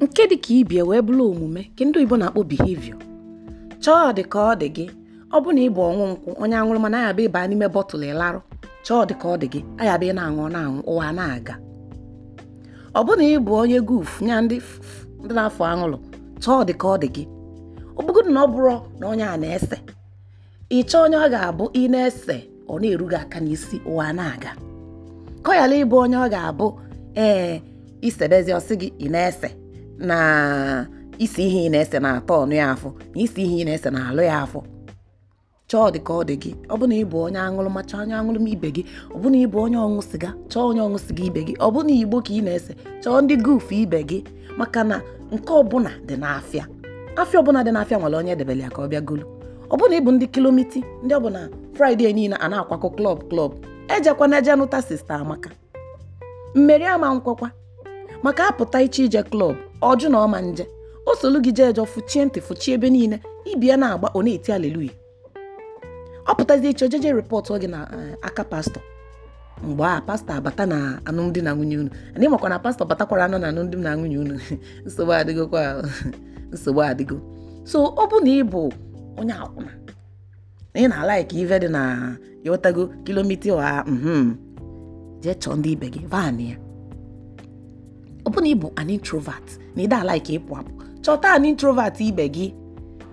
nke dị ka ibie wee bụrụ omume ka ndị oyibo na-akpọ behavior chọọ dị ka ọ dị gị ọ bụ na ịbụ ọnwụ nkwụ onye aṅụrụ mana ayaba ịba n'ime bọtụlụ ịlarụ chọọ dị ka ọ dị gị ayaba ị na-aṅụ na-aṅụ ụwa na-aga ọ bụ na ịbụ onye guf nya ndị na-afọ aṅụrụ chọọ dị ka ọ dị gị ọ na ọ bụrụ na onye a na-ese ịchọ onye ọ ga-abụ ị na-ese ọ na-eru gị aka n'isi ụwa na-aga ka ọ ịbụ onye ọ ga-abụ ee isebezi ọsị gị ị na-ese na isi ihe ị na-ese na-atọ ọnụ ya afọ na isi ihe ị na-ese na-alụ ya afọ chọọ dị ka ọ dị gị ọbụna ịbụ onye aṅụrụ ma chọọ onye ma ibe gị ọbụna ịbụ onye ọṅụ sịga chọọ onye ọṅụ sịga ibe gị ọbụna igbo ka ị na-ese chọọ ndị gufu ibe gị maka na nke ọbụla dị n'afịa afịa ọbụla dị n'afịa nwere onye edebere ya ka ọ bịa golu ọbụna ịbụ ndị kilomiti ndị bụla fraịde niile a na-akwakọ klọb klọb ejekwana eje nụta sista amaka mmeri ama nkwakwa maka apụta iche ije klọb ọjụ na ọma nje o solu gị jee fụchie ntị fụchie ebe niile ibia na-agba ọ na-eti aleluya ọ pụtazie iche ojeje rịpọtụ oge na eh, aka pastọ mgbe a pastọ abata na alụmdi na nwunye unu anyị makwa na pastọ batakwara anụ na alụmdi na nwunye unu nsogbu kwa nsogbu adịgo so ọ bụ na ị bụ onye akwụna ị na-ala ka ive dị na yotago kilomita ụha mhm, jee chọọ ndị ibe gị vaanị ya ọ bụrụ na ị bụ an introvert na ịda ala ka ịpụ apụ chọta an introvert ibe gị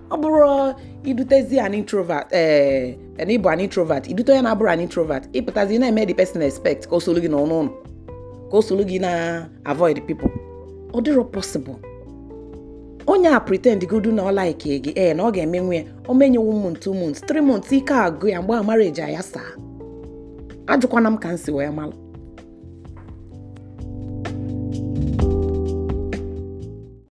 ọ bụrụ idutezi an introvert ee eh, na ịbụ an introvert idute onye na-abụrụ an introvert ịpụtazi na-eme the person expect ka o soro gị n'ọnụ ụlọ ka o soro gị na avoid pipo ọ dịrọ possible onye a pretend godu na ọ like gị ee eh, na ọ ga-eme nwe ya o menyewo m two months three months ike agụ ya mgbe a marriage ya saa ajụkwana m ka m si wee malụ